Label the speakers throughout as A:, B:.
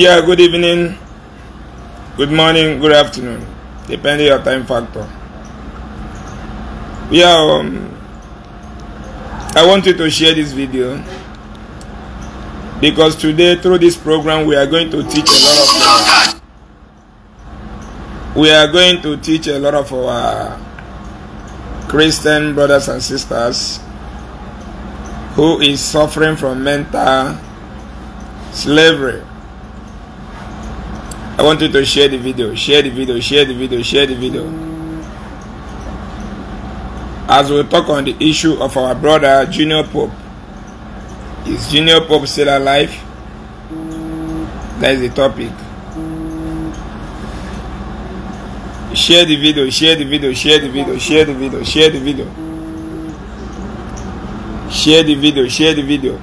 A: Yeah, good evening, good morning, good afternoon, depending your time factor. Yeah, um, I wanted to share this video because today through this program we are going to teach a lot of we are going to teach a lot of our Christian brothers and sisters who is suffering from mental slavery I want you to share the video, share the video, share the video, share the video. As we talk on the issue of our brother Junior Pope, is Junior Pope still alive? That is the topic. Share the video, share the video, share the video, share the video, share the video. Share the video, share the video.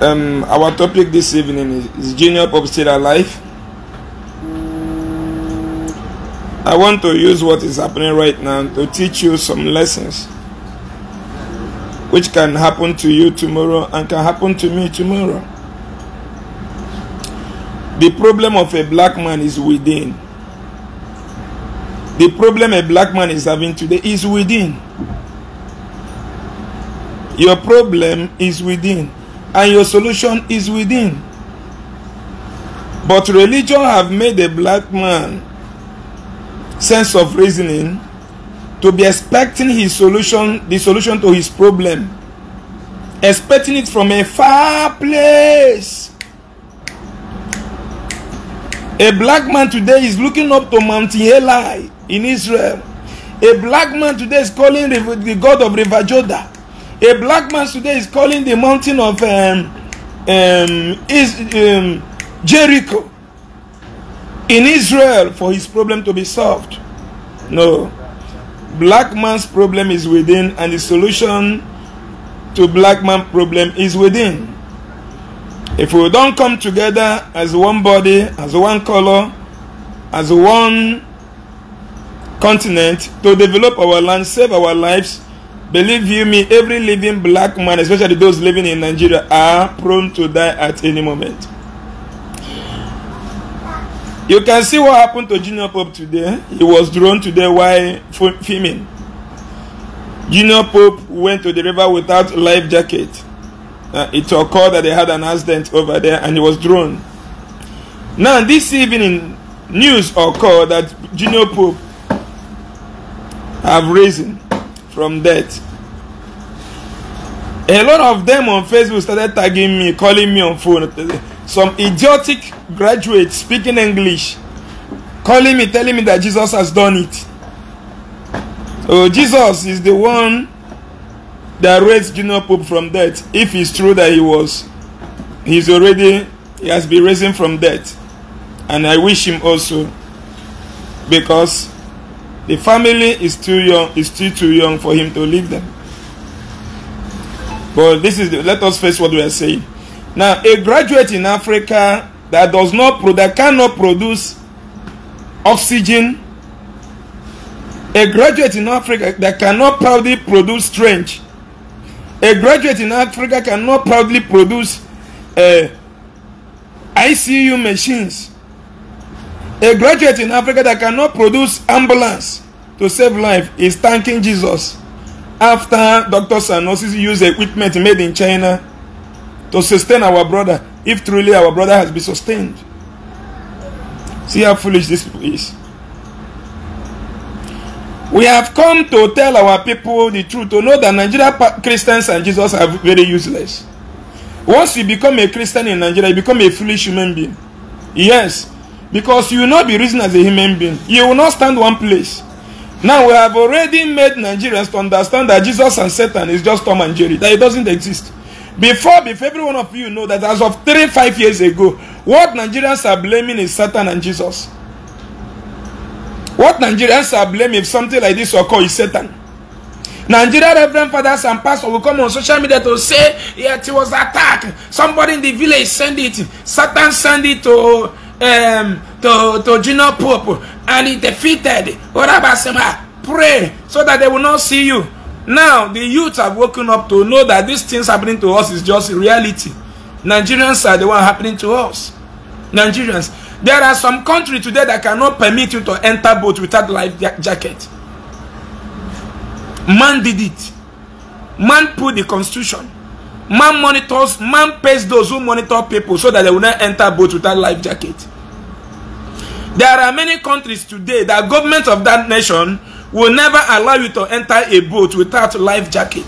A: Um, our topic this evening is, is Junior Pope still alive? I want to use what is happening right now to teach you some lessons which can happen to you tomorrow and can happen to me tomorrow.
B: The problem of a black man is within. The problem a black man is having today is within. Your problem is within, and your solution is within. But religion have made a black man sense of reasoning to be expecting his solution the solution to his problem expecting it from a far place a black man today is looking up to mount eli in israel a black man today is calling the god of river a black man today is calling the mountain of um, um, is, um, jericho in Israel for his problem to be solved. No. Black man's problem is within, and the solution to black man problem is within. If we don't come together as one body, as one color, as one continent to develop our land, save our lives, believe you me, every living black man, especially those living in Nigeria, are prone to die at any moment. You can see what happened to Junior Pope today. He was drawn today while filming. Junior Pope went to the river without life jacket. Uh, it occurred that they had an accident over there and he was drawn. Now, this evening, news occurred that Junior Pope have risen from death. A lot of them on Facebook started tagging me, calling me on phone some idiotic graduate speaking English calling me, telling me that Jesus has done it. So Jesus is the one that raised Junior Pope from death. If it's true that he was, he's already, he has been risen from death. And I wish him also because the family is too young, is still too young for him to leave them. But this is, the, let us face what we are saying. Now, a graduate in Africa that does not that cannot produce oxygen, a graduate in Africa that cannot proudly produce strength, a graduate in Africa cannot proudly produce uh, eh, ICU machines, a graduate in Africa that cannot produce ambulance to save life is thanking Jesus after doctors and nurses use equipment made in China to sustain our brother if truly our brother has been sustained. See how foolish this is. We have come to tell our people the truth, to know that Nigeria Christians and Jesus are very useless. Once you become a Christian in Nigeria, you become a foolish human being. Yes, because you will not be reason as a human being. You will not stand one place. Now we have already made Nigerians to understand that Jesus and Satan is just Tom and Jerry, that it doesn't exist. Before, before every one of you know that as of three, five years ago, what Nigerians are blaming is Satan and Jesus. What Nigerians are blaming if something like this occur is Satan. Nigerian reverend fathers and pastors will come on social media to say, yet it was attack. Somebody in the village send it. Satan send it to um, to, to junior Pope and it defeated. What sema Pray so that they will not see you. now the youth have woken up to know that these things happening to us is just reality nigerians are the one happening to us nigerians there are some country today that cannot permit you to enter boat without life jacket man did it man put the constitution man monitors man pays those who monitor people so that they will not enter boat without life jacket there are many countries today that government of that nation will never allow you to enter a boat without life jacket.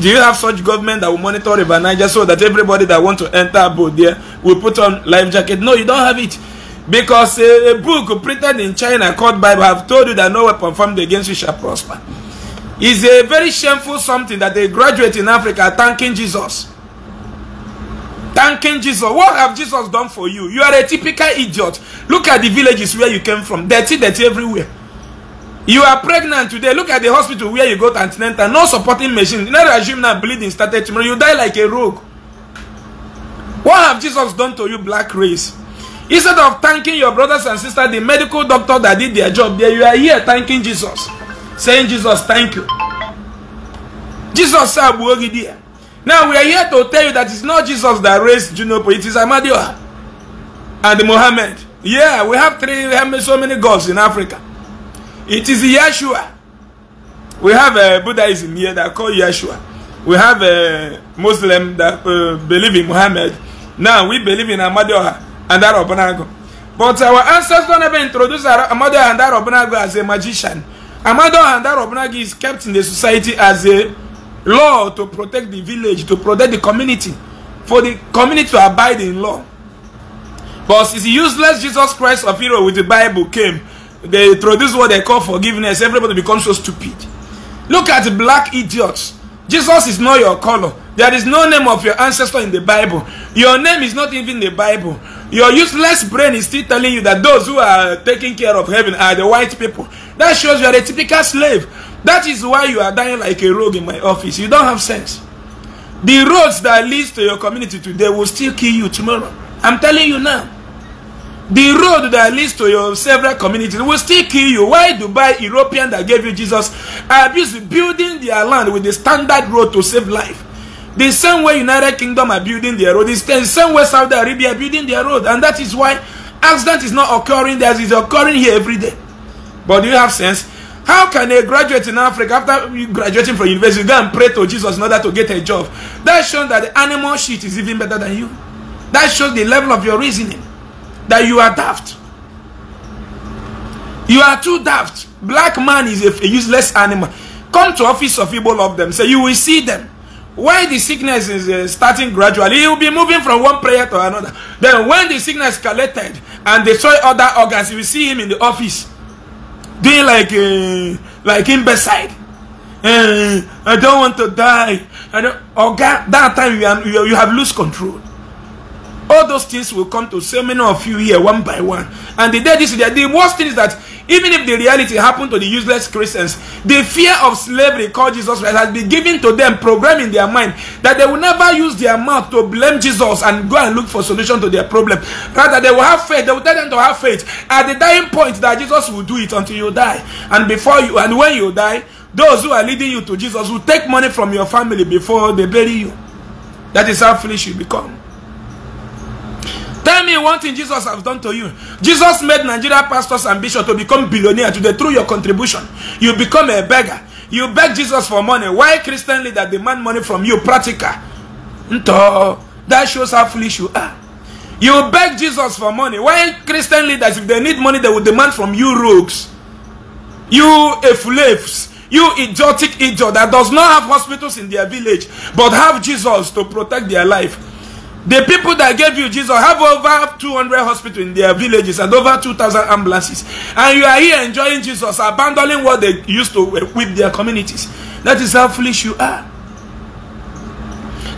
B: Do you have such government that will monitor River Niger so that everybody that want to enter a boat there will put on life jacket? No, you don't have it. Because a, a book printed in China called Bible have told you that no weapon formed against you shall prosper. Is a very shameful something that they graduate in Africa thanking Jesus. Thanking Jesus. What have Jesus done for you? You are a typical idiot. Look at the villages where you came from. Dirty, dirty everywhere. You are pregnant today. Look at the hospital where you go to antenatal. No supporting machine. Let's assume na bleeding started tomorrow. You die like a rogue. What have Jesus done to you, black race? Instead of thanking your brothers and sisters, the medical doctor that did their job there, you are here thanking Jesus. Saying, Jesus, thank you. Jesus said, dear. Now we are here to tell you that it's not Jesus that raised juno it is Amadioha and Mohammed. Yeah, we have three, we have so many gods in Africa. It is Yeshua. We have a uh, Buddhism here that call Yeshua. We have a uh, Muslim that uh, believe in Muhammad. Now we believe in Amadioha and But our ancestors never introduce Amadioha and Arobonago as a magician. Amadioha and is kept in the society as a law to protect the village, to protect the community, for the community to abide in law. But it's useless Jesus Christ of Hero with the Bible came they introduce what they call forgiveness, everybody becomes so stupid. Look at black idiots. Jesus is not your color. There is no name of your ancestor in the Bible. Your name is not even the Bible. Your useless brain is still telling you that those who are taking care of heaven are the white people. That shows you are a typical slave. That is why you are dying like a rogue in my office. You don't have sense. The roads that leads to your community today will still kill you tomorrow. I'm telling you now. the road that leads to your several communities will still kill you. Why Dubai, European that gave you Jesus, abuse building their land with the standard road to save life? The same way United Kingdom are building their road, the same way Saudi Arabia building their road, and that is why accident is not occurring there, it's occurring here every day. But do you have sense? How can a graduate in Africa, after graduating from university, go and pray to Jesus in order to get a job? That shows that the animal shit is even better than you. That shows the level of your reasoning. that you are daft. You are too daft. Black man is a, a useless animal. Come to office of people of them. Say so you will see them. When the sickness is uh, starting gradually, he will be moving from one prayer to another. Then when the sickness collected and destroy other organs, you will see him in the office doing like uh, like imbecile. Uh, I don't want to die. I don't. Organ, that time you, are, you, you have lost control all those things will come to so many of you here one by one. And the day this the, the worst thing is that even if the reality happened to the useless Christians, the fear of slavery called Jesus Christ has been given to them, programmed in their mind, that they will never use their mouth to blame Jesus and go and look for solution to their problem. Rather, they will have faith. They will tell them to have faith at the dying point that Jesus will do it until you die. And before you, and when you die, those who are leading you to Jesus will take money from your family before they bury you. That is how foolish you become. Tell me one thing Jesus has done to you. Jesus made Nigeria pastors and bishops to become billionaire today through your contribution. You become a beggar. You beg Jesus for money. Why Christian leaders demand money from you? Practical. That shows how foolish you are. You beg Jesus for money. Why Christian leaders, if they need money, they will demand from you rogues. You slaves. You idiotic idiot that does not have hospitals in their village, but have Jesus to protect their life. The people that gave you Jesus have over 200 hospitals in their villages and over 2,000 ambulances. And you are here enjoying Jesus, abandoning what they used to equip uh, their communities. That is how foolish you are.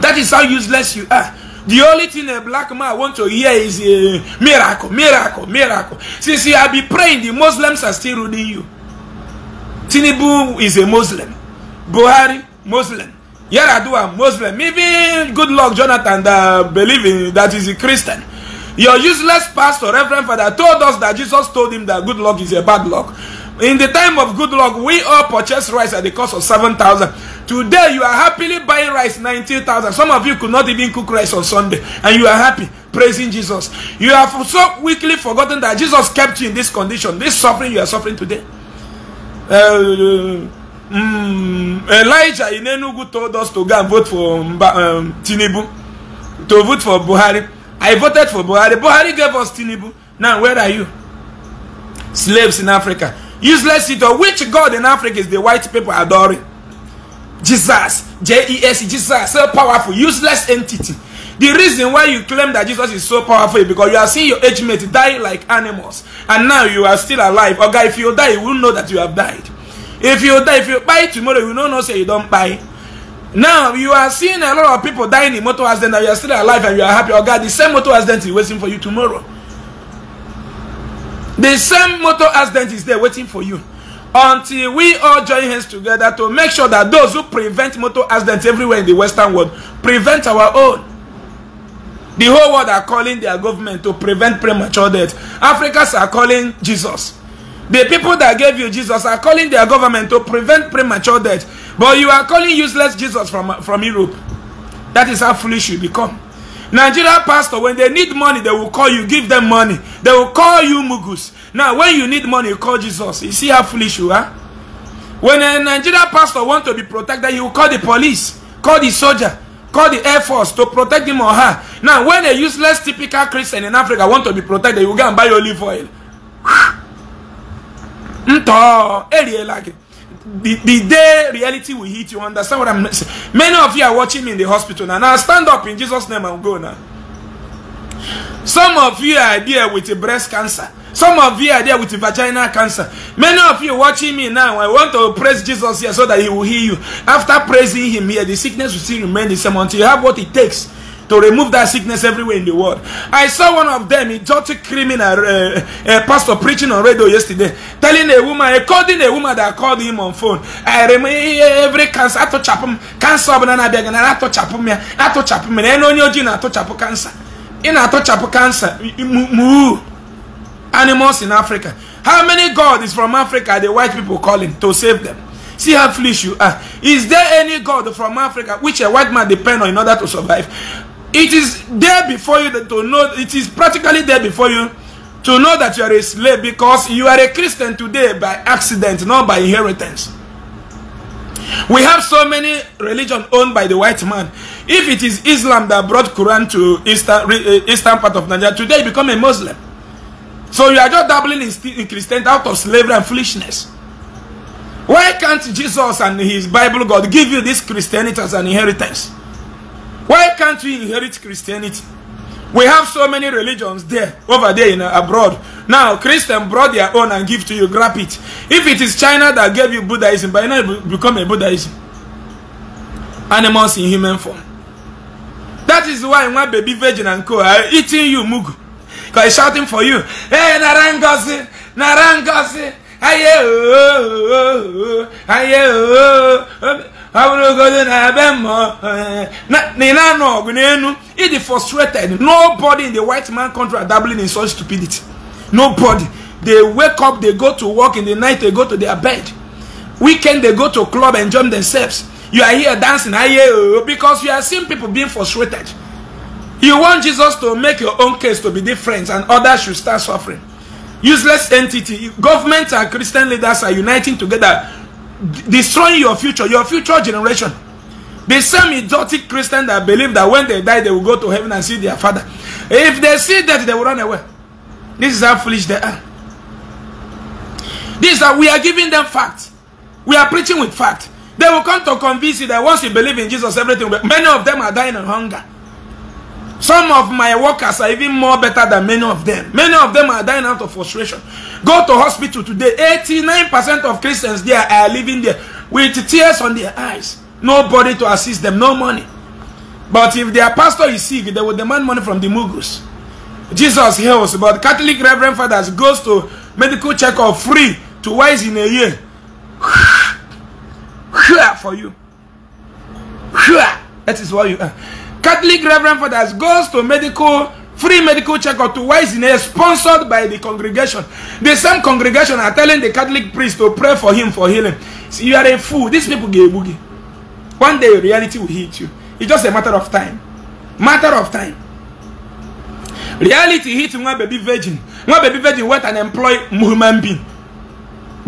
B: That is how useless you are. The only thing a black man want to hear is a uh, miracle, miracle, miracle. Since you have been praying, the Muslims are still ruling you. Tinibu is a Muslim. Buhari, Muslim. Yaradu are Muslim. Even good luck Jonathan that believe that is a Christian. Your useless pastor, Reverend Father, told us that Jesus told him that good luck is a bad luck. In the time of good luck, we all purchased rice at the cost of 7,000. Today, you are happily buying rice 19,000. Some of you could not even cook rice on Sunday, and you are happy praising Jesus. You have so quickly forgotten that Jesus kept you in this condition, this suffering you are suffering today. Uh, Hmm, Elijah in Enugu told us to go and vote for um, Tinubu, to vote for Buhari. I voted for Buhari. Buhari gave us Tinubu. Now, where are you? Slaves in Africa. Useless idol. Which God in Africa is the white people adoring? Jesus. J-E-S, Jesus. So powerful. Useless entity. The reason why you claim that Jesus is so powerful is because you see your age mate die like animals. And now you are still alive. Or okay, if you die, you will know that you have died. If you die, if you buy tomorrow, you don't know say you don't buy. Now you are seeing a lot of people dying in motor accident and you are still alive and you are happy. Oh God, the same motor accident is waiting for you tomorrow. The same motor accident is there waiting for you. Until we all join hands together to make sure that those who prevent motor accidents everywhere in the Western world prevent our own. The whole world are calling their government to prevent premature death. Africans are calling Jesus. The people that gave you Jesus are calling their government to prevent premature death. But you are calling useless Jesus from, from Europe. That is how foolish you become. Nigeria pastor, when they need money, they will call you, give them money. They will call you mugus. Now, when you need money, you call Jesus. You see how foolish you are? When a Nigeria pastor wants to be protected, he will call the police, call the soldier, call the air force to protect him or her. Now, when a useless typical Christian in Africa want to be protected, will go and buy olive oil. ntɔ area e like the the day reality will hit you understand what i'm saying many of you are watching me in the hospital now now stand up in jesus name and go now some of you are there with a breast cancer some of you are there with a vaginal cancer many of you watching me now i want to praise jesus here so that he will heal you after praising him here the sickness will still remain the same until you have what it takes to remove that sickness everywhere in the world. I saw one of them, a dirty criminal, uh, a uh, pastor preaching on radio yesterday, telling a woman, according a woman that called him on phone, I remove every cancer, I touch up him, cancer, of I beg, and I touch up him, I touch up him, and I know you're not touch up cancer. In a touch up cancer, moo, animals in Africa. How many God is from Africa the white people calling to save them? See how foolish you are. Is there any God from Africa which a white man depend on in order to survive? It is there before you to know, it is practically there before you to know that you are a slave because you are a Christian today by accident, not by inheritance. We have so many religion owned by the white man. If it is Islam that brought Quran to eastern, eh, eastern part of Nigeria, today you become a Muslim. So you are just dabbling in, in Christianity out of slavery and foolishness. Why can't Jesus and his Bible God give you this Christianity as an inheritance? Why can't we inherit Christianity? We have so many religions there, over there in abroad. Now, christians brought their own and give to you, grab it. If it is China that gave you Buddhism, by now you become a Buddhism. Animals in human form. That is why my baby virgin and co are eating you, Mugu. Because shouting for you, Hey, Narangosi, Narangosi, Aye, oh, oh, oh, oh ọ bụrụgodo eh, na ebe mma na ị na-anọ ọgụ n'elu ịdị frustrated nobody in the white man country are dabbling in such stupidity nobody they wake up they go to work in the night they go to their bed weekend they go to club and enjoy themselves you are here dancing I hear oh, because you are seeing people being frustrated you want Jesus to make your own case to be different and others should start suffering useless entity Government and Christian leaders are uniting together destroying your future, your future generation. The same idiotic Christian that believe that when they die, they will go to heaven and see their father. If they see that, they will run away. This is how foolish they are. This is that we are giving them facts. We are preaching with fact. They will come to convince you that once you believe in Jesus, everything will be. Many of them are dying of hunger. Some of my workers are even more better than many of them. Many of them are dying out of frustration. Go to hospital today. 89% of Christians there are living there with tears on their eyes. Nobody to assist them, no money. But if their pastor is sick, they will demand money from the Mughals. Jesus heals, but Catholic Reverend Fathers goes to medical checkup free twice in a year. For you. That is what you are. Catholic Reverend Fathers goes to medical free medical checkup to Waisine sponsored by the congregation. The same congregation are telling the Catholic priest to pray for him for healing. See, you are a fool. These people gay boogie. One day reality will hit you. It's just a matter of time. Matter of time. Reality hit one baby virgin. One baby virgin went and employed human being.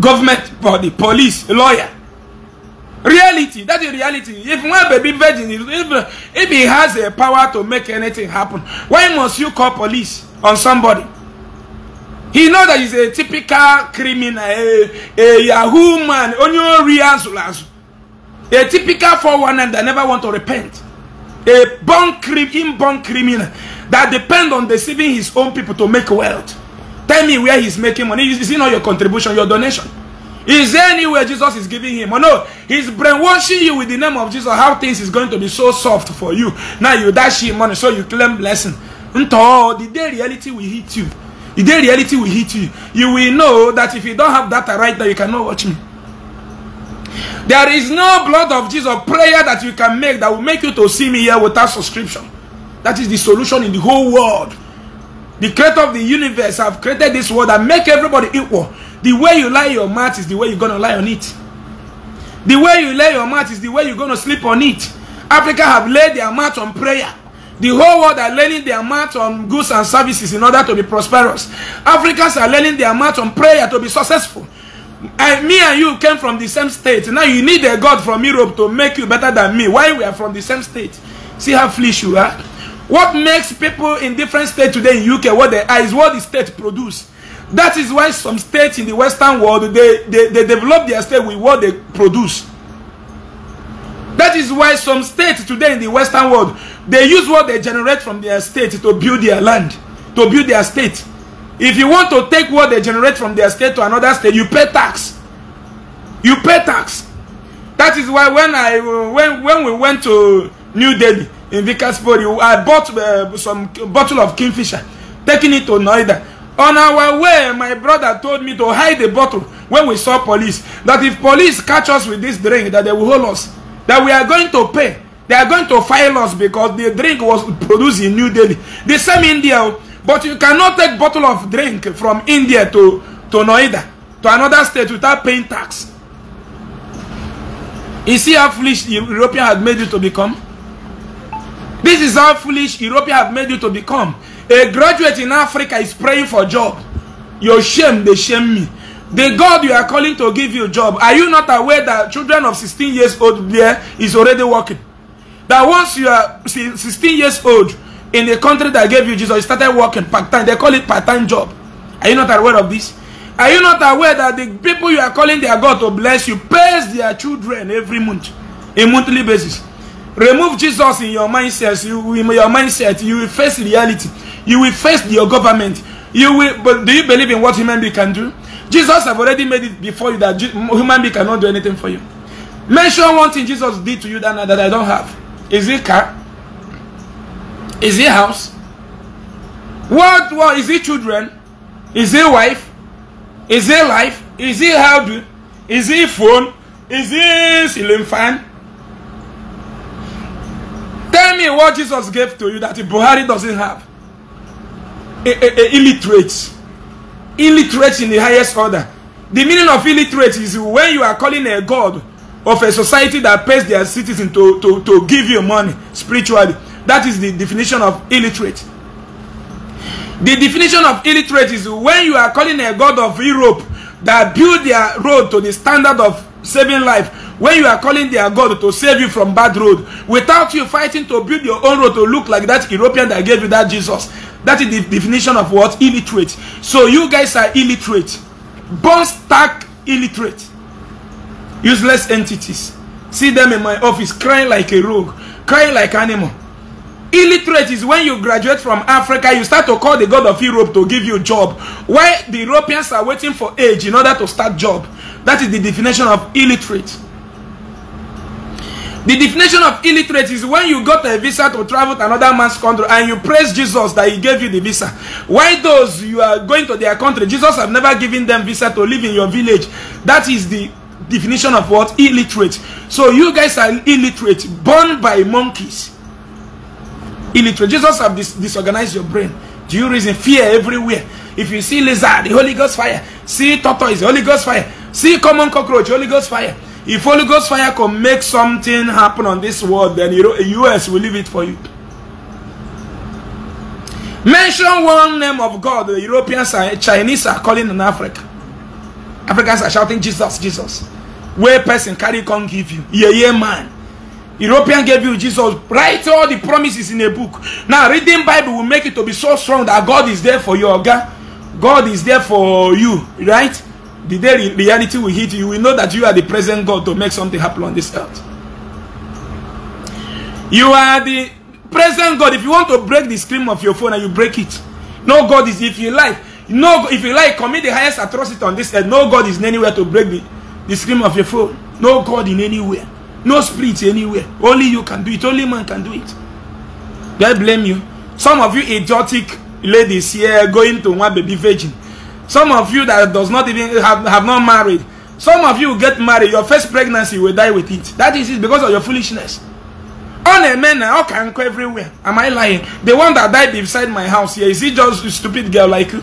B: Government body, police, lawyer. reality that is reality if one baby virgin if, if he has a power to make anything happen why must you call police on somebody he know that he's a typical criminal a, a yahoo man a typical 419 that never want to repent a born inborn criminal that depend on deceiving his own people to make wealth tell me where he's making money is it not your contribution your donation Is there anywhere Jesus is giving him? Or no, he's brainwashing you with the name of Jesus. How things is going to be so soft for you. Now you dash him money, so you claim blessing. Until the day reality will hit you. The day reality will hit you. You will know that if you don't have that right now, you cannot watch me. There is no blood of Jesus prayer that you can make that will make you to see me here without subscription. That is the solution in the whole world. The creator of the universe have created this world and make everybody equal. The way you lie your mouth is the way you're gonna lie on it. The way you lay your mouth is the way you're gonna sleep on it. Africa have laid their mouth on prayer. The whole world are laying their mouth on goods and services in order to be prosperous. Africans are laying their mouth on prayer to be successful. I, me and you came from the same state. Now you need a God from Europe to make you better than me. Why we are from the same state? See how foolish you are. What makes people in different states today in UK what they are is what the state produce that is why some states in the western world they they, they develop their state with what they produce that is why some states today in the western world they use what they generate from their state to build their land to build their state if you want to take what they generate from their state to another state you pay tax you pay tax that is why when i when when we went to new delhi in vikas i bought uh, some bottle of kingfisher taking it to noida on our way my brother told me to hide the bottle when we saw police that if police catch us with this drink that they will hold us that we are going to pay they are going to file us because the drink was produced in new delhi the same india oh, but you cannot take bottle of drink from india to to noida to another state without paying tax you see how foolish european had made you to become this is how foolish european have made you to become A graduate in Africa is praying for job. Your shame, they shame me. The God you are calling to give you job, are you not aware that children of 16 years old there is already working? That once you are 16 years old in the country that gave you Jesus, you started working part-time. They call it part-time job. Are you not aware of this? Are you not aware that the people you are calling their God to bless you pays their children every month, a monthly basis? Remove Jesus in your mindset. You, in your mindset, you will face reality. You will face your government. You will. But do you believe in what human being can do? Jesus have already made it before you that human being cannot do anything for you. Mention one thing Jesus did to you that, that I don't have. Is it car? Is it house? What? What is it? Children? Is it wife? Is it life? Is it how do? Is it phone? Is it ceiling fan? Tell me what Jesus gave to you that Buhari doesn't have. A, a, a illiterate. Illiterate in the highest order. The meaning of illiterate is when you are calling a god of a society that pays their citizens to, to, to give you money spiritually. That is the definition of illiterate. The definition of illiterate is when you are calling a god of Europe that build their road to the standard of saving life when you are calling their God to save you from bad road without you fighting to build your own road to look like that European that gave you that Jesus. That is the definition of what? Illiterate. So you guys are illiterate. Born stark illiterate. Useless entities. See them in my office crying like a rogue, crying like animal. Illiterate is when you graduate from Africa, you start to call the God of Europe to give you a job. while the Europeans are waiting for age in order to start job. That is the definition of illiterate. The definition of illiterate is when you got a visa to travel to another man's country and you praise Jesus that he gave you the visa. Why those you are going to their country, Jesus have never given them visa to live in your village. That is the definition of what? Illiterate. So you guys are illiterate, born by monkeys. Illiterate. Jesus have dis disorganized your brain. Do you reason? Fear everywhere. If you see lizard, the Holy Ghost fire. See tortoise, the Holy Ghost fire. See common cockroach, Holy Ghost fire. If Holy Ghost fire can make something happen on this world, then US will leave it for you. Mention one name of God, the Europeans and Chinese are calling in Africa. Africans are shouting, Jesus, Jesus. Where person carry can give you. Yeah, yeah, man. European gave you Jesus. Write all the promises in a book. Now, reading Bible will make it to be so strong that God is there for you. oga God is there for you, right? the day reality will hit you, you will know that you are the present God to make something happen on this earth. You are the present God. If you want to break the screen of your phone and you break it, no God is, if you like, no, if you like, commit the highest atrocity on this earth. No God is anywhere to break the, the screen of your phone. No God in anywhere. No spirit anywhere. Only you can do it. Only man can do it. Do I blame you? Some of you idiotic ladies here going to one baby virgin. Some of you that does not even have, have not married, some of you get married, your first pregnancy will die with it. That is it because of your foolishness. On men man now can go everywhere. Am I lying? The one that died beside my house here, is he just a stupid girl like you?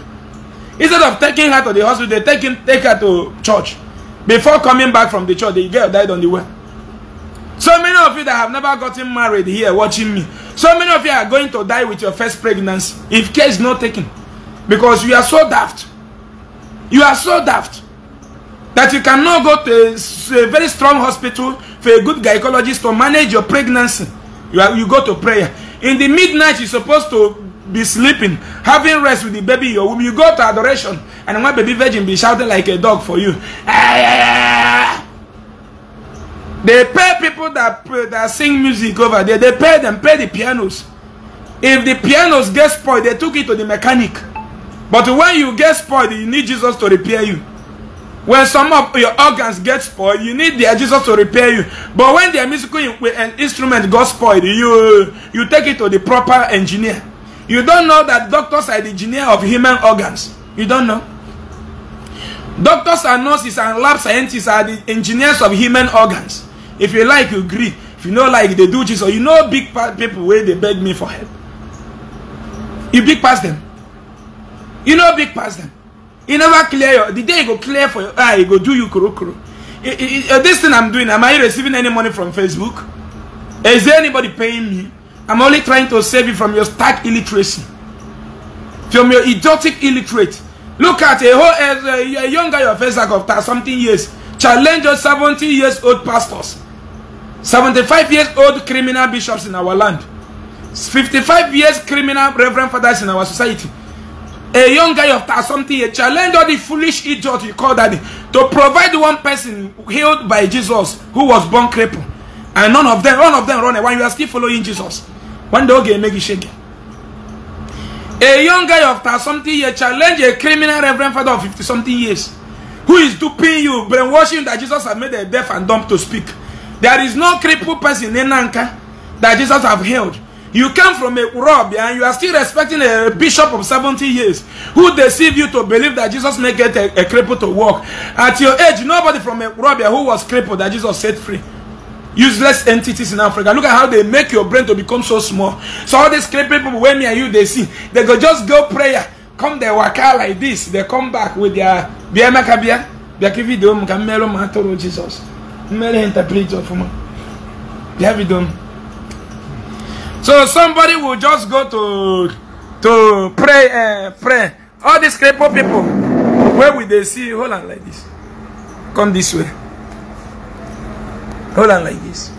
B: Instead of taking her to the hospital, they take, him, take her to church. Before coming back from the church, the girl died on the way. So many of you that have never gotten married here watching me, so many of you are going to die with your first pregnancy if care is not taken because you are so daft. You are so daft that you cannot go to a, very strong hospital for a good gynecologist to manage your pregnancy. You, are, you go to prayer. In the midnight, you're supposed to be sleeping, having rest with the baby your womb. You go to adoration, and one baby virgin be shouting like a dog for you. They pay people that, that sing music over there. They pay them, pay the pianos. If the pianos get spoiled, they took it to the mechanic. But when you get spoiled, you need Jesus to repair you. When some of your organs get spoiled, you need their Jesus to repair you. But when their musical instrument got spoiled, you, you take it to the proper engineer. You don't know that doctors are the engineer of human organs. You don't know. Doctors and nurses and lab scientists are the engineers of human organs. If you like, you agree. If you know like, they do Jesus. You know big people where they beg me for help. You big past them. you no big pastor you never clear your the day you go clear for your eye ah, e go do you kuro uh, this thing i'm doing am i receiving any money from facebook is there anybody paying me i'm only trying to save you from your stark illiteracy from your idiotic illiterate look at a whole a young guy of face after something years challenge your 70 years old pastors 75 years old criminal bishops in our land 55 years criminal reverend fathers in our society a young guy of something a challenge all the foolish idiot you call daddy to provide one person healed by jesus who was born crippled and none of them none of them run away you are still following jesus when the oge make you shake a young guy of something years challenge a criminal reverend father of 50 something years who is duping you brainwashing that jesus has made a deaf and dumb to speak there is no crippled person in nanka that jesus have healed You come from a rob and you are still respecting a bishop of 70 years who deceived you to believe that Jesus may get a, a cripple to walk. At your age, nobody from a rob who was crippled that Jesus set free. Useless entities in Africa. Look at how they make your brain to become so small. So all these crippled people, when me and you, they see, they go just go prayer. Come they walk out like this. They come back with their bia makabia. Bia kivi Jesus. Mele interpret of man. So somebody will just go to to pray uh, pray. All these crippled people, where will they see? Hold on like this. Come this way. Hold on like this.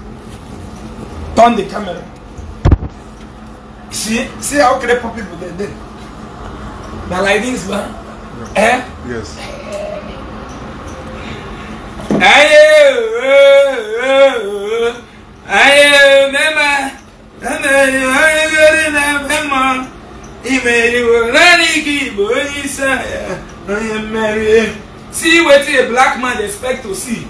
B: Turn the camera. See, see how crippled people they did. Now like this, man. Yeah. Eh? Yes. Aye, oh, oh, oh, aye, aye, aye, aye, aye, aye, aye, aye, aye, aye, aye, aye, aye, aye, na-emeri onye na-ebe mmanwụ imeriwo naanị gị bụ onye see what a black man expect to see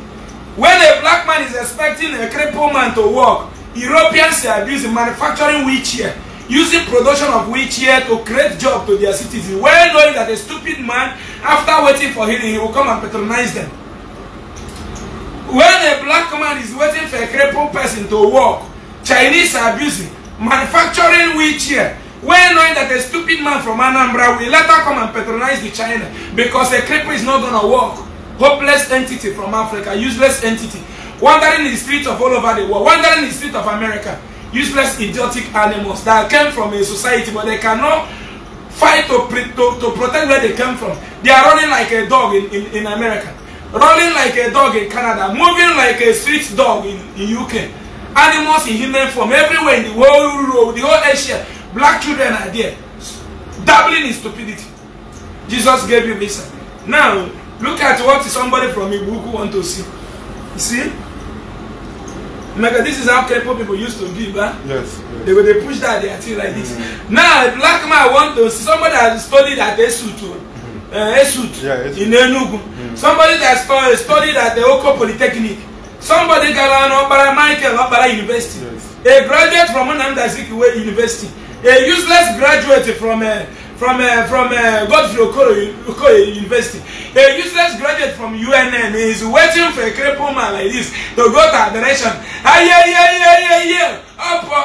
B: when a black man is expecting a crippled man to walk europeans are abusing manufacturing wheelchair using production of wheelchair to create job to their citizens well knowing that a stupid man after waiting for healing he will come and patronize them when a black man is waiting for a crippled person to walk Chinese are abusing, manufacturing wheelchair. Well knowing that a stupid man from Anambra will later come and patronize the China because a creeper is not gonna work. Hopeless entity from Africa, useless entity, wandering in the streets of all over the world, wandering in the streets of America, useless idiotic animals that came from a society but they cannot fight to, to, to protect where they came from. They are running like a dog in, in, in America, Running like a dog in Canada, moving like a street dog in, in UK animals in human form everywhere in the whole world the whole asia black children are there dabbling in stupidity jesus gave you this. now look at what somebody from Ibuku want to see you see mega this is how kepo people used to give huh? yes, yes. they go dey push that their thing like this mm -hmm. now black man want to see somebody has studied at esutu uh, esut yeah, in enugu mm
A: -hmm. somebody
B: that studied at the oko polytechnic somebody gara na ọkpara michael ọkpara university a graduate from nnamdi azikiwe university a useless graduate from a uh, from a uh, from uh, godfrey okoye okoye university a useless graduate from unn is waiting for a cripple man like this to go to adoration ayeyeyeyeye ọpọ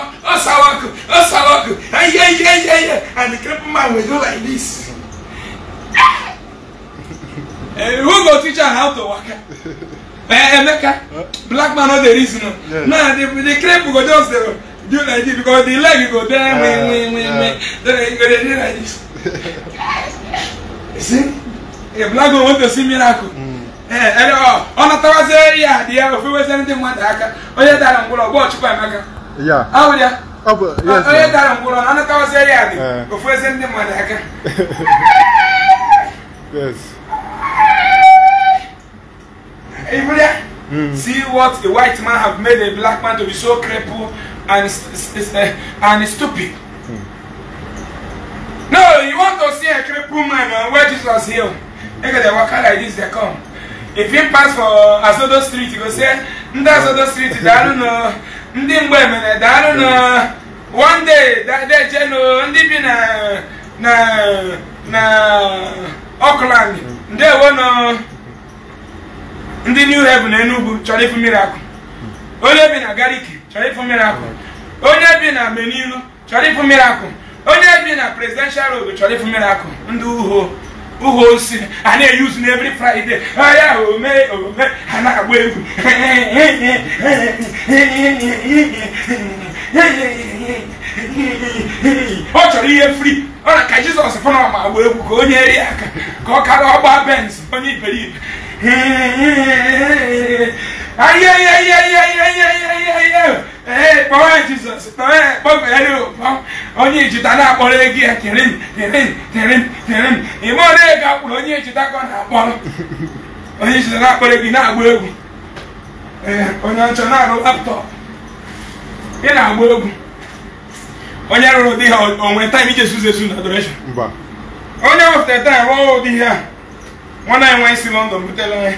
B: aye aye aye, and the cripple man will do like this uh, who go teach am how to waka. Eh, Emeka, black man no dey reason o. Now the the crepe go just dey do like this because the leg go there me me win me Then you go dey like this. See, a black man want to see miracle. Mm. Ee, eh, ọ natawazie ya dị ya ofewezi ndị mmadụ aka onye dara mgbọrọ gba ọchụkwa Emeka. Awụ ya. Onye dara mgbọrọ ọ natawazie ya dị eh. ofewezi ndị mmadụ aka. Yes. Everywhere. Mm. See what a white man have made a black man to be so crippled and eh, and stupid. Mm. No, you want to see a crippled man where Jesus healed. Look at the walker like this, they come. If you pass for Asodo Street, you go say, "That's Asodo Street, daalụnụ, ndị mgbe mere, daalụnụ, one day, they jeno, ndị na na na Auckland, hmm. ndewo nọ. ndị new heaven Enugu chọrọ ịfụ akụ onye bi na gariki chọrọ ịfụ akụ onye bi na menilu chọrọ ịfụ akụ onye bi na presidential road chọrọ ịfụ akụ ndị uho uho osi a na-eyuzu na every friday ahịa ome ome ha na-agba egwu ọ chọrọ ihe free ọ na ka jizọs fụna ọma agba egwu ka onye eri aka ka ọ kara ọgba benz onye iberibe onye ayé ayé ayé ayé ayé ayé ayé ee kpọọ ya jizọs kpọọ ya onye ejita na-akpọrọ ego onye ejita ka na-akpọrọ onye ejita na-akpọrọ ego na-agba egwu ee onye na-arụ laptọp ị na-agba egwu onye rụrụ di ha onwe taim iji esuzu esu na adoreshon onye wepụtara taim rụọ ụdị ihe a nwana anyị nwee si London butela ya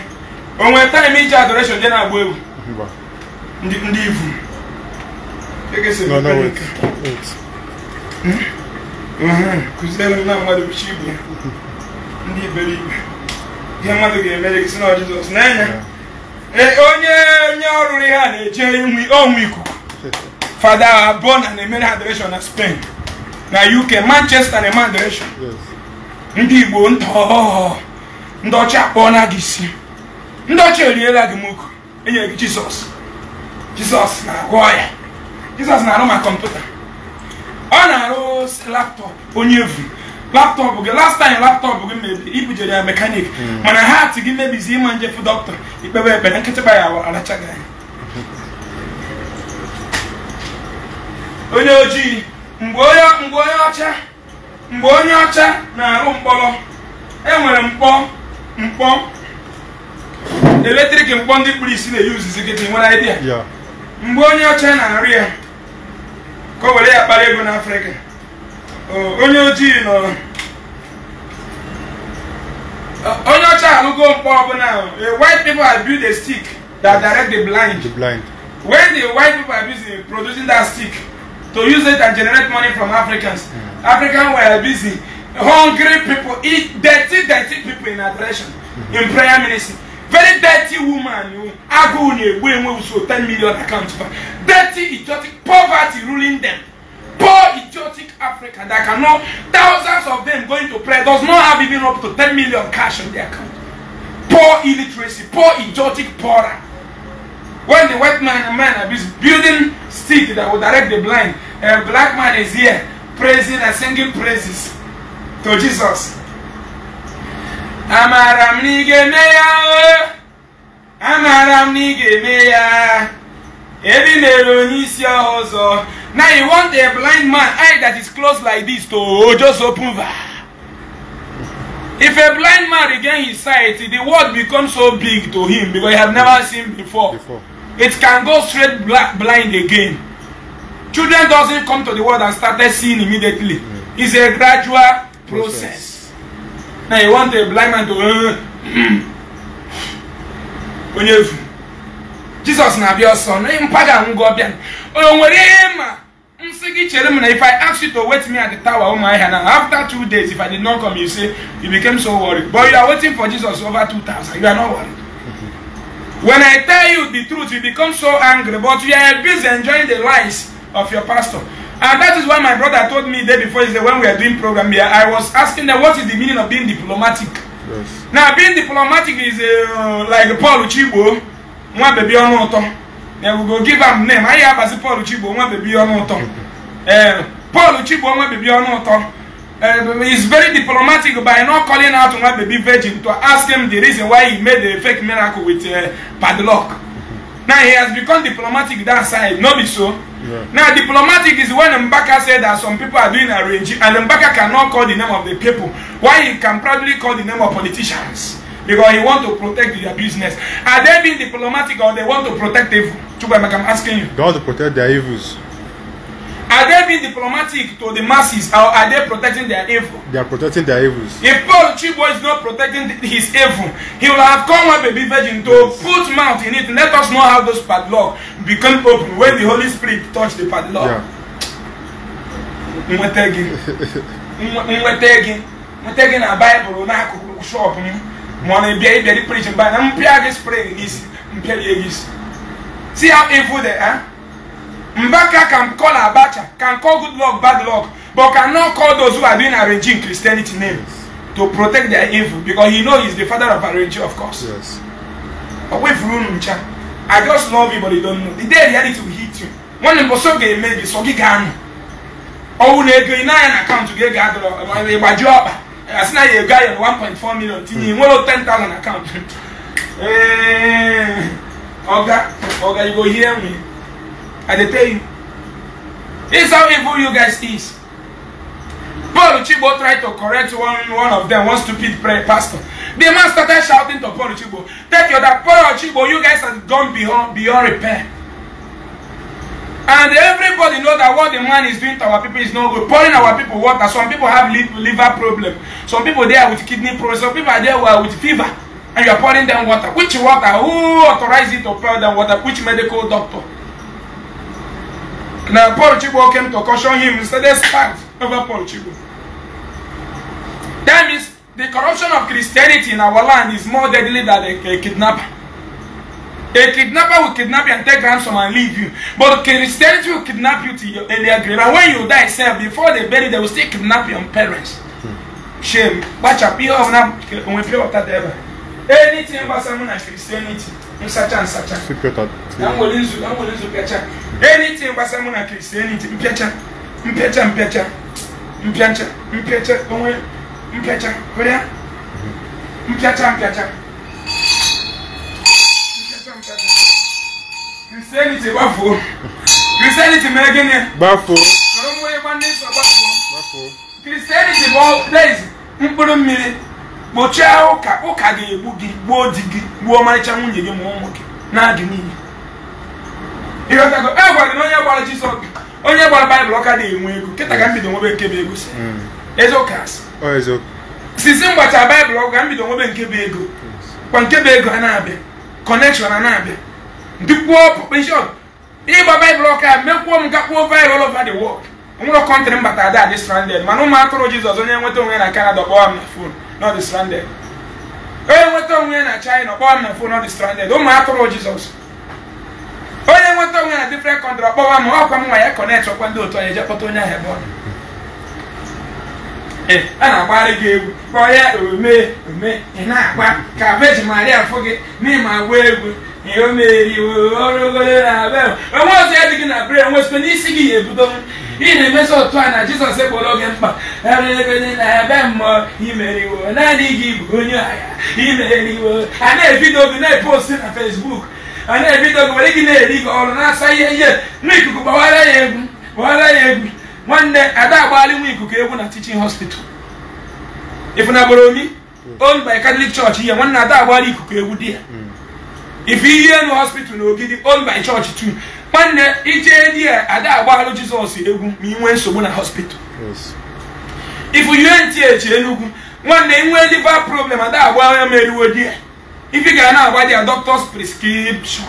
B: o nwere taịm iji adoration je na-agba ewu ndị ivu
A: hmm? kụziere na mmadụ bichi ibu ya ndị iberibe ihe mmadụ ga-emere gị si na
B: Jizọs n'anya eh, onye onye ọrụrụ ihe a na-eje ikuku fada abụọ na-emere adoration na Spain na UK Manchester na-eme ndị Igbo nta ndị ọcha akpọọ na gị isi ndị ọcha eriela gị moko enyere gị jizọs jizọs na-agwọ ọya jizọs na-arụ ma kọmputa ọ na-arụ laptọpụ onye evu laptọpụ gị last time laptọpụ gị mebi ibujere ya mekanik hmm. mana ha atị gị mebizi ịma njefu dọkịta ikpebe ekpere nkịtịkpa ya aracha gị anya onye ojii mgbe onye ọcha mgbe onye ọcha na-arụ mkpọrọ enwere mkpọ mkpọ eletrik mkpọ ndị kpụrụ isi na-eyuzizi kịta nwere idea mgbe onye ọcha na-arị ya ka o were ya kpara ego n'afrịka
A: onye ojii nọ
B: onye ọcha alụgo mkpọ ọbụla white people are built a stick that direct the blind. the blind when the white people are busy producing that stick to use it and generate money from africans mm. africans were busy hungry people, eat dirty, dirty people in adoration, in prayer ministry. Very dirty woman, you ago when we so ten million accounts. Dirty, idiotic, poverty ruling them. Poor, idiotic Africa that can know thousands of them going to pray. does not have even up to ten million cash on their account. Poor illiteracy, poor, idiotic, poorer. When the white man man is building stick that will direct the blind, a black man is here praising and singing praises to Jesus. Amara m na ị ga-eme ya o! Amara m na ị ga-eme ya! Ebi mere onye isi ọzọ. Now you want a blind man eye that is closed like this to just open that. If a blind man regain his sight, the world becomes so big to him because he have never seen before. before. It can go straight black, blind again. Children doesn't come to the world and started seeing immediately. Mm. It's a gradual process na you want a blind man to uh, onye efu Jesus na be your son. mpaga ngụ ọbịa o nwere ihe ma chere na if i ask you to wait me at the tower ụmụahịa na after two days if i did not come you say you became so worried but you are waiting for jesus over 2000 you are not worried when i tell you the truth you become so angry but you are busy enjoying the lies of your pastor And uh, that is why my brother told me day before yesterday when we are doing program here, I was asking them what is the meaning of being diplomatic.
A: Yes.
B: Now being diplomatic is uh, like Paul Chibo, one baby on auto. Then we go give him name. I have as Paul Chibo, one baby on auto. Uh, Paul Chibo, one baby on auto. Uh, he's very diplomatic by not calling out one baby virgin to ask him the reason why he made the fake miracle with uh, padlock. Now he has become diplomatic that side, not be so. Now, diplomatic is when Mbaka said that some people are doing arranging, and Mbaka cannot call the name of the people. Why he can probably call the name of politicians? Because he want to protect their business. Are they being diplomatic or they want to protect evil? Chubam, I'm asking you.
A: They want to protect their evils.
B: Are they being diplomatic to the masses or are they protecting their evil?
A: They are protecting their evils.
B: If Paul Chibo is not protecting his evil, he will have come a baby virgin to put mouth in it. Let us know how those padlock become open when the Holy Spirit touch the padlock. Yeah. Nweta gị na Baịbụl n'akụkụ shọp m ma ọ na-ebịa na mpịa spray n'isi mpịa gị See how evil they are? Mbaka can call Abacha, can call good luck, bad luck, but cannot call those who are doing arranging Christianity names to protect their evil because he knows he's the father of arranging, of course. Yes. Away I just love you, but you don't know. The day reality will hit you. One of us okay, maybe so he can. Oh, they go in an account to get gathered by job. As now you guy on 1.4 million, you nwere 10,000 account. Hey, Oga, Oga, you go hear me. I dey tell you. This is how evil you guys is. Paul Uchigbo tried to correct one, one of them, one stupid prayer pastor. The man started shouting to Paul Uchigbo, Take you, that Paul Uchigbo, you guys have gone beyond, beyond repair. And everybody know that what the man is doing to our people is no good. Pouring our people water. Some people have liver problem. Some people there with kidney problem. Some people are there with fever. And you are pouring them water. Which water? Who authorized you to pour them water? Which medical doctor? Now Paul Chigbo came to caution him. He said, let's over Paul Chigbo. That means the corruption of Christianity in our land is more deadly than a, a kidnapper. A kidnapper will kidnap you and take ransom and leave you. But Christianity will kidnap you to your earlier grave. And when you die, self, before they bury, they will still kidnap your parents. Shame. Watch up. You have not when pay water ever. Anything about someone and Christianity. Such and such.
A: I'm
B: willing to catch up. anything gbasara mụ na kristianity mpịacha mpịacha mpịacha mpịacha mpịacha onwe mpịacha hụrịa mpịacha mpịacha kristianity gbafuo kristianity mere gịnị gbafuo sọrọ mmụọ ịgba ndị nsọ gbafuo kristianity bụ place mkpụrụ mmiri kpochie ụka ụka ga-egbu gị gbuo di gị gbuo ọmarịcha nwunye gị ma ụmụ gị na-adị n'ihi e gwara na onye gbara Jizọs onye gbara baịbụl ọka na-enwe ego kịta ka m mm. bido nwebe nke bụ ego mm. sisi m gbacha baịbụl ọgụ ka m bido nwebe nke bụ ego kwa nke bụ ego a na-abịa kọnekshọn a na-abịa dupuo pọpeshọn ịgba baịbụl ọka mekwuo m gakpuo viral ọva the world nwụrụ kọntrị mbata bata ada dị stranded mana ụmụ atụrụ Jizọs onye nweta onwe na kanada kpọọ m na fon nọ dị stranded onye nweta onwe na China kpọọ m na fon nọ dị stranded ụmụ atụrụ Jizọs onwe na different country ọkpọwa m ọkwa m nwa ya kọnet ọkwa ndị otu anyị jekọta onye ahụ ebe ọ a na agbara gị egwu kpọọ ya ome ome ị na-agba ka veji maria fụ gị n'ịma gwa egwu ihe o meri ọrụgoro na be onwe ọzọ ya dị gị na brer nwesịkwa n'isi gị ya ebido ị na-emezi otu a na jizọs ekpọrọ gị mkpa erụegone na ebe mmụọ imeriwo naanị gị bụ onye agha imeriwo a na-ebido gị na-eposti na fesbuk a na-ebido gị were gị na-eri gị ọrụ na-asa ihe ihe nwa ikuku gbaghara ya egwu gbawara ya egwu nwanne ada agbalị nwa ikuku egwu na tichin hospital ịfụnabụrụ omi hmm. owned by Catholic Church ihe nwanne ada agbalị ikuku egwu di ya hmm. ife ihe nụ hospital na ogidi owned chọọchị church nwanne ije di ya ada agbalụ Jizọs egwu ma ị nwee nsogbu na hospital ifu UNTH Enugu nwanne ị nwee liver problem ada agbalụ ya ma di ya If you cannot buy their doctor's prescription,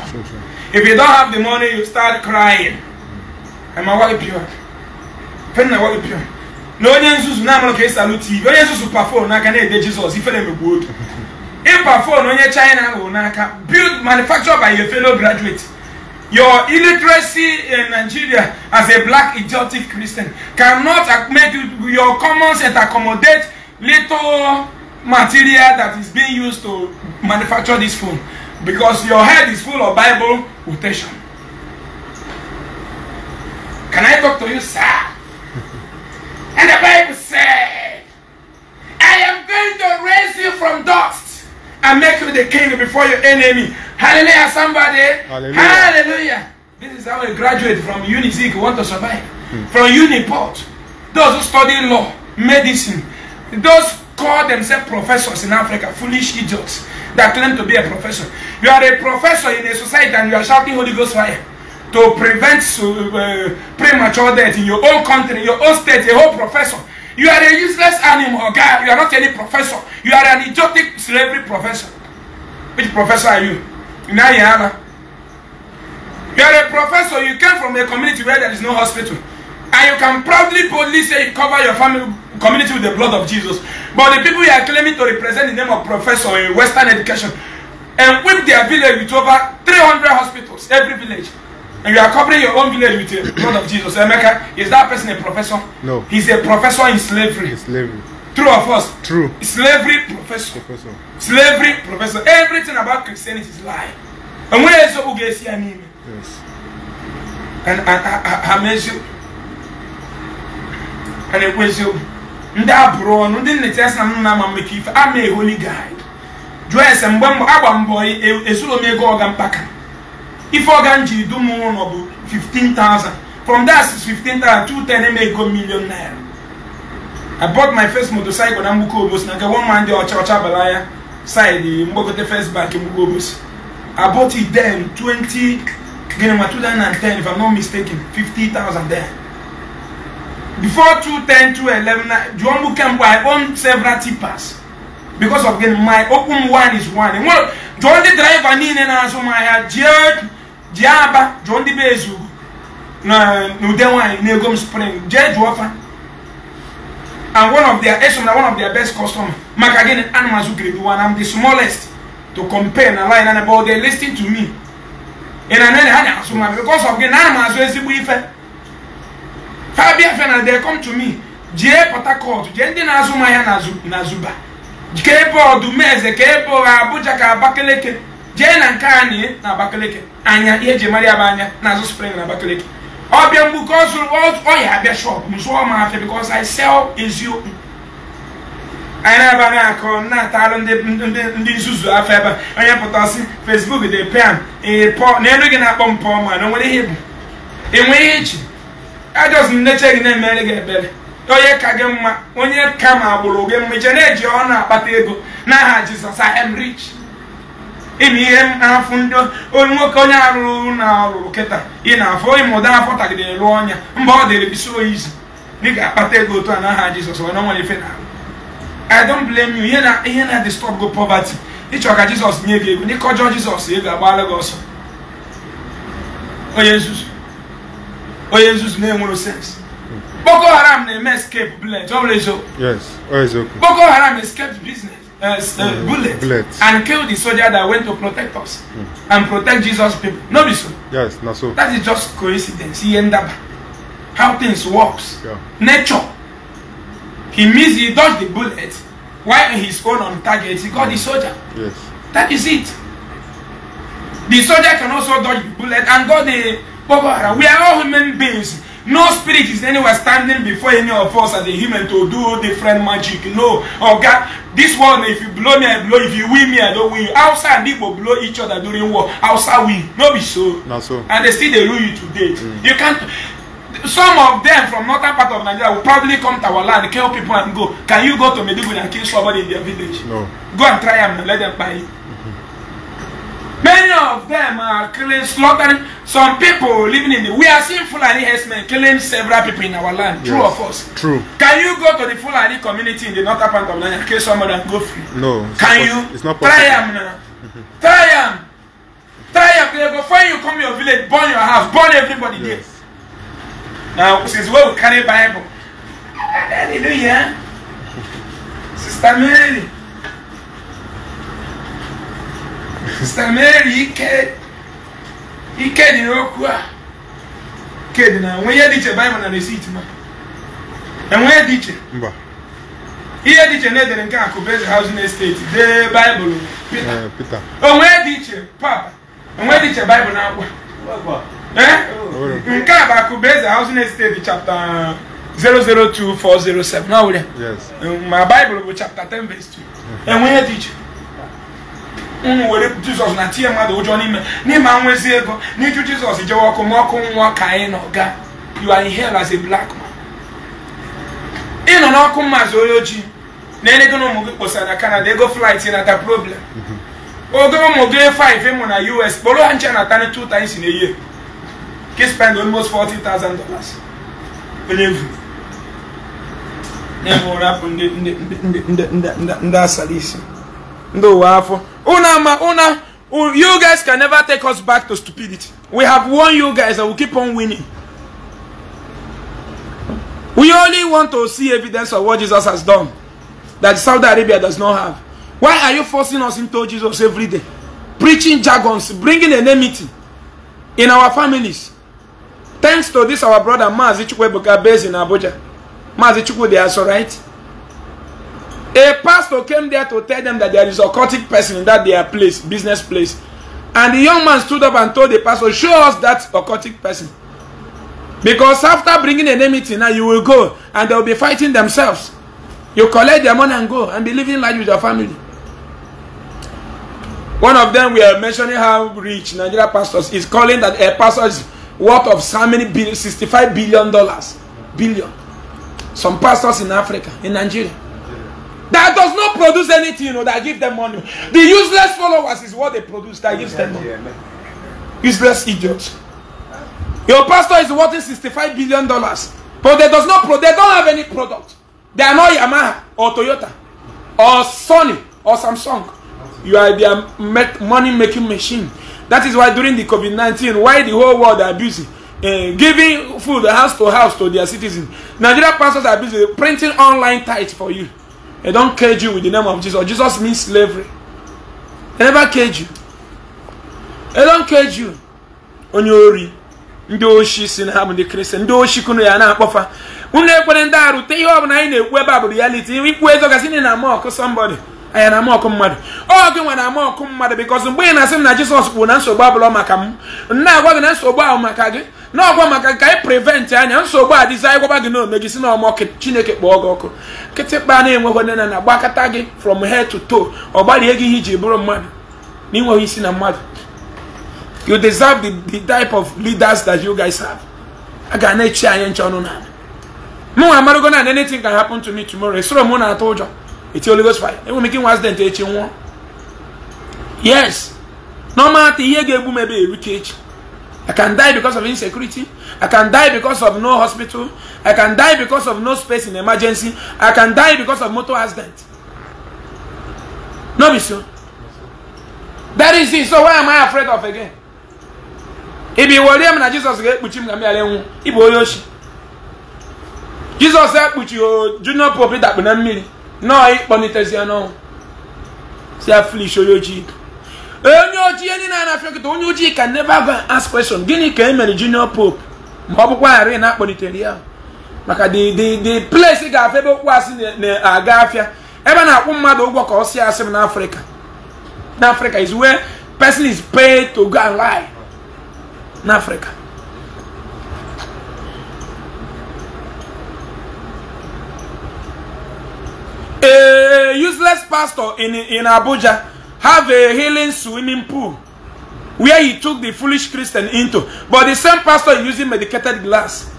B: if you don't have the money, you start crying. And my wife pure. Pen na wife pure. Na onye nzuzu na amara ka esi alụ TV. Onye nzuzu perform n'aka na-ede If they megbu good, if perform no onye China ahụ n'aka build manufactured by your fellow graduate. Your illiteracy in Nigeria as a black idiotic Christian cannot make your common sense accommodate little material that is being used to manufacture this phone because your head is full of Bible quotation. Can I talk to you, sir? and the Bible said, I am going to raise you from dust and make you the king before your enemy. Hallelujah, somebody. Hallelujah. Hallelujah. This is how a graduate from UNIZIC want to survive. Hmm. From UNIPORT. Those who study law, medicine, those call themselves professors in Africa, foolish idiots. that claim to be a professor. You are a professor in a society and you are shouting Holy Ghost fire to prevent uh, premature death in your own country, your own state, a whole professor. You are a useless animal, guy. You are not any professor. You are an idiotic slavery professor. Which professor are you? In Ayana. You are a professor. You came from a community where there is no hospital. And you can proudly, boldly say you cover your family, community with the blood of Jesus. But the people you are claiming to represent the name of professor in Western education and whip their village with over 300 hospitals, every village. And you are covering your own village with the blood of Jesus. America, is that person a professor? No. He's a professor in slavery. In slavery. True or false? True. Slavery professor. professor. Slavery professor. Everything about Christianity is lie. And where is Ugesi Anime? Yes. And I, I, I, I mentioned. And it was you. ndị abụrụ ọnụ ndị nnetesa m na-ama mmekọ ife ama eholi gaid jụọ ese mgbe agba mbọ ezuru m ego ọga mpaka ife ọga m jiri dum ụlọ bụ 15,000 from that 15,000 to 10 ego million naira I bought my first motorcycle na obosi na nke one man ọcha ọcha bala ya side mgbagote first bank mgbuko obosi I bought it then 20 gịnị ma 2010 if I'm not mistaken 50,000 there before two ten 210 to 11 Juombu Kempo, I own several tippers. Because of again, my open one is one. And what John the driver need and answer my uh, Jared Jaba, John the Bezu, Nudewa, Negum Spring, Jared Wafa. And one of their na one of their best customers. maka again animals who grade one. am the smallest to compare na line and about they ten to me. And I know they had because of again animals who is the ha bịa fena come to me jee Port Harcourt jee ndị na-azụ mmanya na Zuba ka ebe ọdụmeze ka ebe ọha Abuja ka Abakaliki jee na nke anyị na Abakaliki anya ihe eji maria ya bụ anya na-azụ spring na Abakaliki ọbịa mgbuke ọya abịa shop m zụọ afịa because I sell eziokwu anyị na-abaghị akọ na-atara ndị nzuzu afọ ebe onye pụta si Facebook dị pịa m n'elu gị na-akpọ m pọọ ma na o nwere ihe bụ enwe ihe echi ajọs nneche gị na-emere gị ebere onye ka gị mma onye ka ma agbụrụ gị mma iche na-eji ọnụ akpata ego n'aha jizọs I rich ịma ihe afụ ndị nwoke onye arụrụ na ọrụrụ kịta ị na-afụ ịma ụda afọ tagidere rụọ ọnya mba ọ dịrị bisi oyi ị dịka akpata ego otu a n'aha jizọs onye nwere ife na-arụ I don't blame you ihe na na-disturb gị poverty ịchọ ka jizọs nye gị ego n'ịkọjọ jizọs ego agbaala gị ọsọ onye nzuzu onye nzuzu na-enwero sens boko haram na-eme escape bullet ọ bụrụ eziokwu boko haram escaped business Uh, mm, bullet, bullet and kill the soldier that went to protect us mm. and protect Jesus people. No be so.
A: Yes, not so. That
B: is just coincidence. He end up how things works. Yeah. Nature. He missed. He dodge the bullet while his own on target. He got mm. the soldier. Yes. That is it. The soldier can also dodge the bullet and got the We are all human beings. No spirit is anywhere standing before any of us as a human to do different magic. No. Oh God, this one, if you blow me, I blow. If you win me, I don't win. Outside, people blow each other during war. Outside, win. No be so. Not so. And they still they rule you today. Mm. You can't. Some of them from northern part of Nigeria will probably come to our land, kill people and go. Can you go to Meduguri and kill somebody in their village? No. Go and try and let them buy it. Many of them are killing, slaughtering. Some people living in the. We are seeing Fulani herdsmen killing several people in our land. True yes, or false? True. Can you go to the Fulani community in the northern part of Nigeria and kill someone and go free?
A: No. Can you? It's not possible. Try them,
B: now. Try them, Try them. They go you, come to your village, burn your house, burn everybody yes. there. Now, since where we carry Bible. Hallelujah. Sister Mary. site Mary ike ike dị n'okwu a ike dị na nwe ihe dị iche baịbụl na resit ma enwe dị iche ihe dị iche na-edere nke akụ beze hauzin esteti dee baịbụl pita eh, onwe dị iche papa onwe dị iche baịbụl na akwa eh? nke a bụ akụba eze hauzin esteti 002 407 ma baịbụl bụ chapter 10 verse 2 enwe ihe dị iche ụmụ were jizọs na tinye mmadụ ụjọ n'ime n'ime anwezi ego n'iju jizọs jewe ọkụ ma ọkụ nwụọ ka anyị nọ gaa you are in hell as a black man ị nọ n'ọkụ mmazi onye ojii na-enye na ụmụ gị kpọsara na kanada ego flight nata problem oge ụmụ gị 5 ịmụ na us kpọrọ ha nche natani 2 times na-eye. year ka spend almost 40,000 dollars onye vu na-enwe ụra bụ ndị asara isi ndị ụwa afọ Una, ma, una, you guys can never take us back to stupidity. We have won you guys and we keep on winning. We only want to see evidence of what Jesus has done that Saudi Arabia does not have. Why are you forcing us into Jesus every day? Preaching jargons, bringing enmity in our families. Thanks to this, our brother Mazi Chukwuebuka based in Abuja. Mazi Chukwu, they are so right. A pastor came there to tell them that there is a occultic person in that their place, business place. And the young man stood up and told the pastor, show us that occultic person. Because after bringing an enemy, now you will go and they will be fighting themselves. You collect their money and go and be living life with your family. One of them, we are mentioning how rich Nigeria pastors is calling that a pastor is worth of so many billion, 65 billion dollars. Billion. Some pastors in Africa, in Nigeria that does not produce anything you know, that give them money. The useless followers is what they produce that gives them money. Useless idiots. Your pastor is worth 65 billion dollars, but they does not pro- they don't have any product. They are not Yamaha or Toyota or Sony or Samsung. You are their money making machine. That is why during the COVID 19, why the whole world are busy uh, giving food house to house to their citizens. Nigeria pastors are busy printing online tithes for you. They don't cage you with the name of Jesus. Jesus means slavery. They never cage you. They don't cage you. Onye ori ndị oshi si na ha bụ ndị kristian ndị oshi kunu ya na-akpọfa unu ekwere ndị arụte ihe ọ na anyị na-ekwu ebe a bụ reality ikwu ezogasị na mọkụ somebody anya na ama ọkụ mmadụ ọ gị nwere ama ọkụ mmadụ bikọs mgbe ị na-asị m na jesus kwuru na nsogbu abụla maka m na-agwa gị na nsogbu ahụ maka gị na ọgwa maka ka anyị prevent anya nsogbu a dịzi anyị gwaba gị n'ome gị si na ọmọ chineke kpọọ gị ọkụ kịtịkpa na-enweghị onye na na gị from head to toe ọ gbalie gị ihe iji bụrụ mmadụ na ịnweghị isi na mmadụ you deserve the, the type of leaders that you guys have a ga na-echi anyị nche ọnụ na mụnwa anything can happen to me tomorrow esoro m na-atụ ụjọ eti holy ghost fire ewu mi ki nwa accident echi nwụọ yes normal thing ihe ga-egbu m ebe erute echi i can die because of insecurity i can die because of no hospital i can die because of no space in emergency i can die because of motor accident no be so that is it so why am i afraid of again ibi wọrie m na jizọs ga-ekpuchi m ka m ghara enwu ịbụ onye ochi jizọs ekpuchi junior pope dakpu na mmiri nọọ ịkpọnitezi ọnụ si afilish onye ojii onye ojii ndị na-anafịa nkịta onye ojii ka never go ask question gịnị ka e mere junior pope ma ọ bụkwa ghara na-akpọlitere ya maka the the the place ga-afịa ebe okwu asị na-aga afịa ebe na-akwụ mmadụ ụgwọ ka ọ si asị m n'afrịka n'afrịka is where person is paid to go and n'afrịka useless pastor in, in Abuja have a healing swimming pool where he took the foolish Christian into. But the same pastor using medicated glass.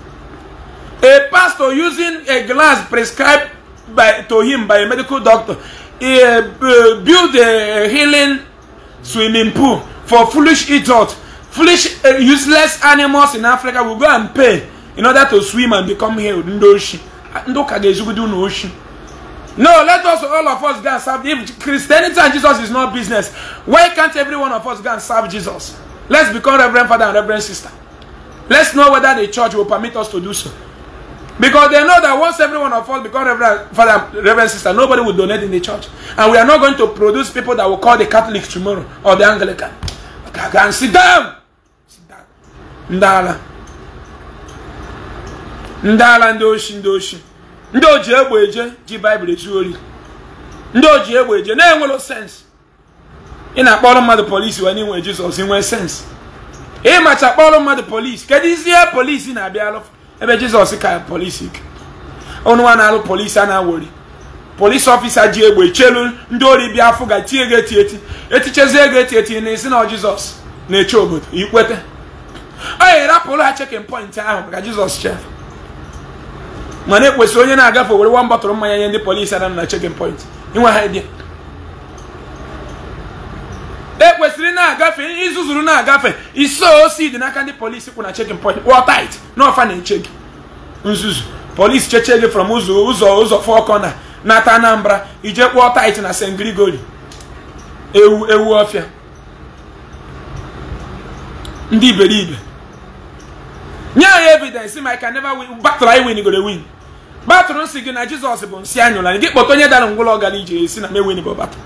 B: A pastor using a glass prescribed by, to him by a medical doctor he, uh, uh build a healing swimming pool for foolish idiots, foolish uh, useless animals in Africa will go and pay in order to swim and become healed. Ndoshi. Ndoka gezugudu no ocean. No, let us all of us go and serve. If Christianity and Jesus is not business, why can't every one of us go and serve Jesus? Let's become Reverend Father and Reverend Sister. Let's know whether the church will permit us to do so. Because they know that once every one of us become Reverend Father, Reverend Sister, nobody will donate in the church. And we are not going to produce people that will call the Catholic tomorrow or the Anglican. Okay, go and sit down. Sit down. Ndala. Ndala ndoshi ndoshi. ndị ji egbe eje ji baịbụl eju ori ndị ji egbe eje na-enwero sensị ị na-akpọrọ mmadụ polisi wee n'inwe jizọs inwe sensị ịmacha kpọrọ mmadụ polisi kedu isi ihe polisi na-abịa ebe jizọs ka polisi ọnụnwa na-alụ polisi a na-awori polisi ọfisa ji egbe chelu ndị ori bịa afọ ga tie ego eti eti etichezie ego eti eti na esi na jizọs na-eche obodo ikweta ọ ya rapụrụ ha chekin pọint ahụ ka jizọs chef mana ekwesịrị onye na-agafe were one bọtụlụ mmanya nye ndị polisi anam na chekin point inwe ha idea ekwesịrị na-agafe izuzuru na-agafe iso osi dị n'aka ndị polisi kwụ na chekin point wọ tait na ọfa na-eche gị nzuzu polisi cheche gị from ụzọ ụzọ ụzọ fọ kọna n'ata anambra ije kpụọ tait na st grigori ewu ewu ọfịa ndị iberibe nye anyị evidence ma ị ka neva win battle anyị win gore win batụrụ nsị gị na jizọs bụ nsị anyụla gị kpọta onye dara ngwụlọ ọgara ije si na mewin bụ batụ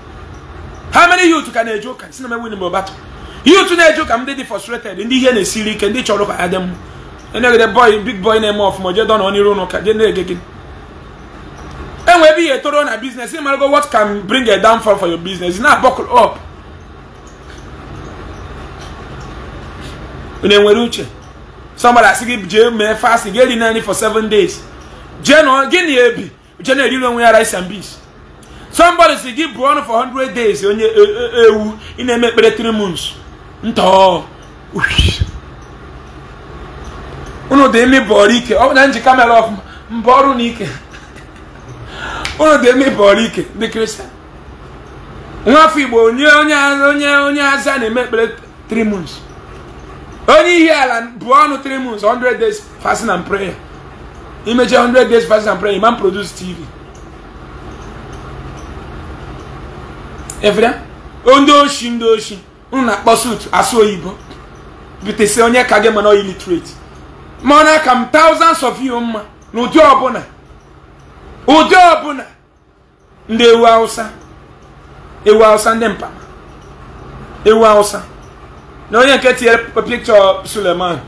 B: ha mere ihe otu ka na-eje ụka si na mewin bụ batụ ihe otu na-eje ụka ndị dị frustrated ndị ihe na-esiri ike ndị chọrọ ka ha dị mma enegede bọị big boy na-eme ọfụma jee dọnọ n'iru ụlọ ụka jee na-ege gị enwe ebe ihe etoro na biznes ị marago what can bring a downfall for your business na buckle up unu enwere uche somebody asị gị jee mee fasting gị eri naanị for seven days Uh, gị na ebi je na onwe ya rice and beans somebody si gị bụọ ọnụ for 100 days onye e, e, e, ewu ị na-eme kpere 3 months ntọọ unu dị ime ọrụ ike ọ na ọfụma mba ọrụ na ike unu dị ime ike ndị onye onye onye onye aza na-eme 3 onye ihe ala bụ ọnụ 3 months 100 days fasting and prayer imeche 100 days fasting and prayer imam produce tv efere ndị oshi ndị oshi unu na-akpọ sut asụ oyibo onye ka gị mana illiterate ma ọ na-aka m thousands of you mma na ụdị ọbụla ụdị ọbụla ndị ewu awụsa ewu awụsa ndị mkpa ewu awụsa na onye nke tinyere pikchọ suleman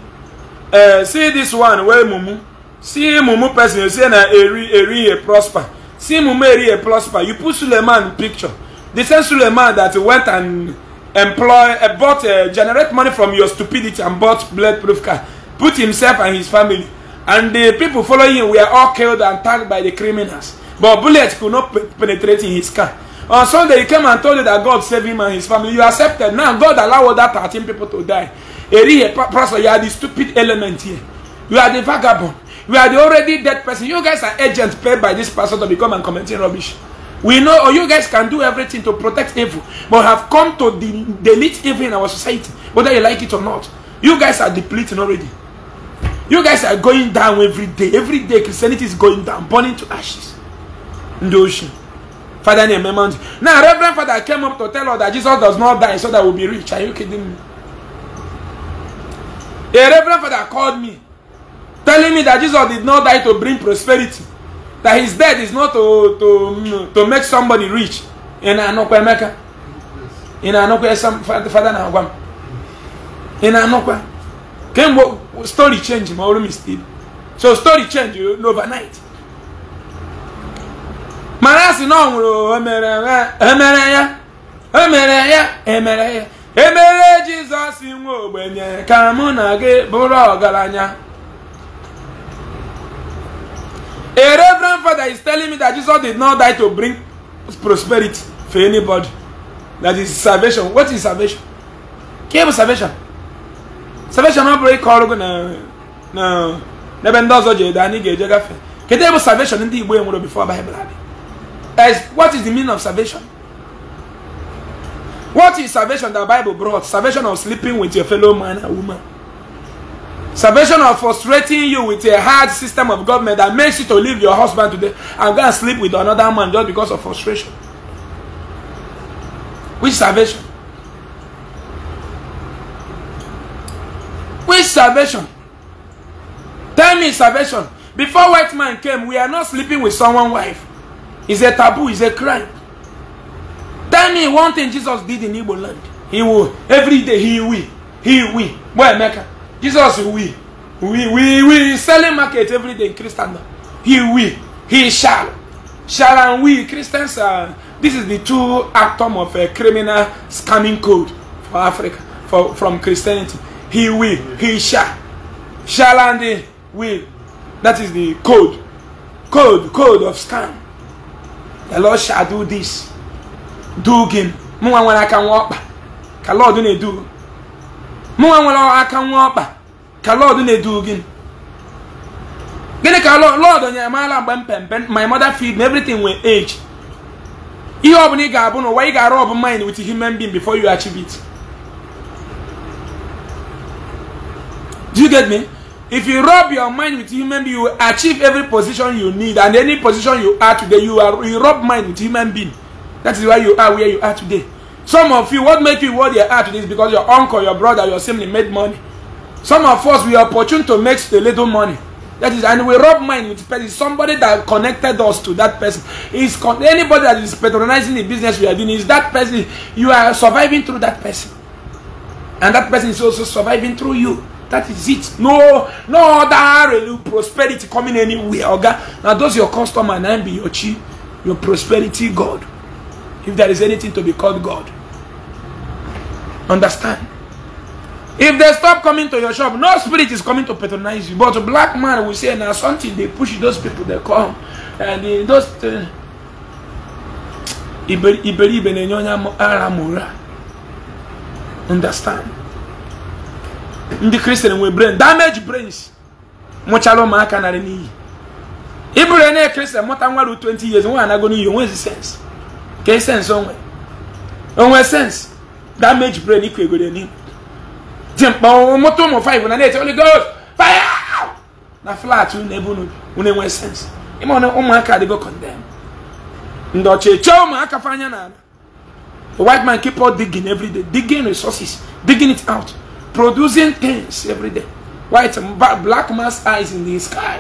B: eh, see this one wee mumu see mumu person you say na eri eri a prosper see mumu eri a prosper you put suleiman picture the same suleiman that went and employ uh, bought uh, generate money from your stupidity and bought bulletproof car put himself and his family and the people following him were all killed and tagged by the criminals but bullets could not penetrate in his car on sunday he came and told you that god saved him and his family you accepted now god allow that 13 people to die eri a prosper you are the stupid element here you are the vagabond we are the already dead person. You guys are agents paid by this person to become and commenting rubbish. We know or you guys can do everything to protect evil, but have come to de delete evil in our society, whether you like it or not. You guys are depleting already. You guys are going down every day. Every day, Christianity is going down, burning to ashes in the ocean. Father, name Mount. Now, Reverend Father came up to tell us that Jesus does not die so that we'll be rich. Are you kidding me? A Reverend Father called me telling me that Jesus did not die to bring prosperity, that his death is not to, to, to make somebody rich. In Anokwa Emeka. In Anokwa Father Nagwam. In Anokwa. Kemgbe story change ma ọrụ still So story change overnight. Mana asị na ọ nwụrụ emere ya emere ya emere ya emere e jesus nwe ogbenye ka mụ na gị bụrụ ọgaranya A reverend father is telling me that Jesus did not die to bring prosperity for anybody. That is salvation. What is salvation? Came salvation. Salvation not break all na na n'ebe ndị ọzọ jere get ga-eje gafe kedu ebe salvation in the nwere before Bible had. What is the meaning of salvation? What is salvation that Bible brought? Salvation of sleeping with your fellow man and woman. Salvation of frustrating you with a hard system of government that makes you to leave your husband today and go and sleep with another man just because of frustration. Which salvation? Which salvation? Tell me salvation. Before white man came, we are not sleeping with someone's wife. It's a taboo, it's a crime. Tell me one thing Jesus did in Igbo land. He will, every day he will, he will. Boy, Mecca. Jesus will. We we we selling market every day in Christendom. He will. He shall. Shall and we Christians are uh, this is the two atom of a uh, criminal scamming code for Africa for, from Christianity. He will, he shall. Shall and will. That is the code. Code, code of scam. The Lord shall do this. Do him. when I can walk. Can Lord do mụnwa nwere aka nwa ọkpa ka lọd na-edu gị gịnị ka lọd nyere maala mgbe m my mother feed me everything with age ihe ọbụla ị ga-abụ n'ụwa ị ga-arụ ọbụ mind with human being before you achieve it do you get me if you rub your mind with human being you achieve every position you need and any position you are today you are you rub mind with human being that is why you are where you are today Some of you, what make you what your heart is because your uncle, your brother, your sibling made money. Some of us, we are opportune to make a little money. That is, and we rub mind with person. Somebody that connected us to that person. Is con anybody that is patronizing the business we are doing, is that person, you are surviving through that person. And that person is also surviving through you. That is it. No, no other really prosperity coming anywhere. Okay? Now, those your customer and be your chief, your prosperity God. if there is anything to be called God. Understand? If they stop coming to your shop, no spirit is coming to patronize you. But black man will say, now something they push those people, they come. And eh, those. Uh, eh, iberibe na-enye onye understand ndị kristian nwere brain damage brains mụchara ụmụaka narị n'iyi ịbụrụ na kristian mụta nwa ru 20 years nwa anago n'iyi onwezi sense ka sense onwe onwe sensị damage brain ikwu egoro n'ihu dị mkpa mụta ụmụ five na na-ete Holy fire na flat unu ebe unu onwe sensị ịma na ụmụaka adịgo condemn ndị ọcha eche ụmụaka fa anya n'ala the white man keep on digging every day digging resources digging it out producing things every day white black man's eyes in the sky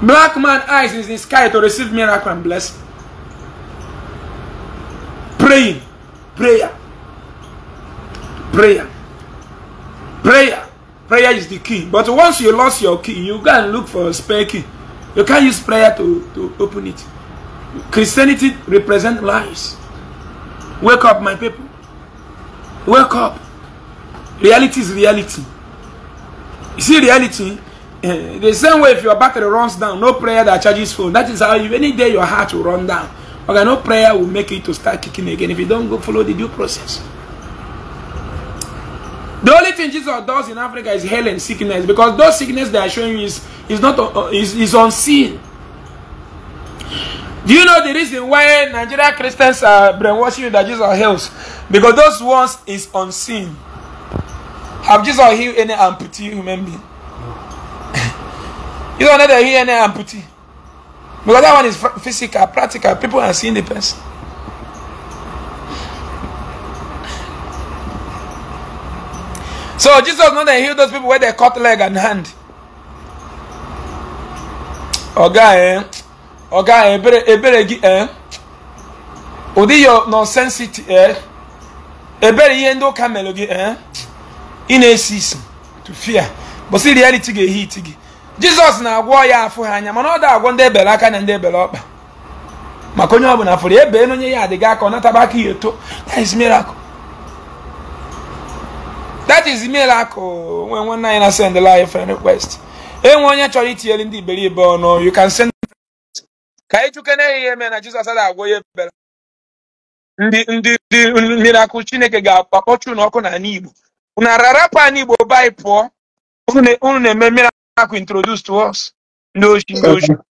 B: Black man eyes is in sky to receive miracle and blessing. Praying. Prayer. Prayer. Prayer. Prayer is the key. But once you lost your key, you go and look for a spare key. You can't use prayer to, to open it. Christianity represents lies. Wake up, my people. Wake up. Reality is reality. You see reality Eh, the same way if your battery runs down, no prayer that charges phone. That is how you, any day your heart will run down. Okay, no prayer will make it to start kicking again if you don't go follow the due process. The only thing Jesus does in Africa is healing and sickness because those sickness they are showing you is, is not uh, uh, is, is unseen. Do you know the reason why Nigerian Christians are brainwashing you that Jesus heals? Because those ones is unseen. Have Jesus healed any amputee human being? You don't know that here and there amputee. Because that one is physical, practical. People are seeing the person. So Jesus not that heal those people where they cut leg and hand. Oga eh. Oga eh, ebere ebere gi eh. Odi your nonsense eh. Ebere ihe ndị ụka gị eh. Ị na-esi to fear. But see reality ga-ehi gị. jizọs na-agwọ ya afọ ha anya mana ọ da agwọ ndị ebere aka na ndị ebere ọkpa maka onye ọbụla fụrụ ebe na onye ya adịghị aka ọ nataba aka ya eto that is miracle that is miracle nwe nwanne anyị na send live friend request enwe onye chọrọ itinyere ndị iberibe ọnụ you can send ka anyị chukene ya ihe mee na jizọs ada agwọ ya ebere ndị ndị ndị miracle chineke ga-akpọchu n'ọkụ n'ala igbo unu ararapụ ala igbo bai pụọ unu na-eme miracle Caco introduz to us. Nojo, nojo.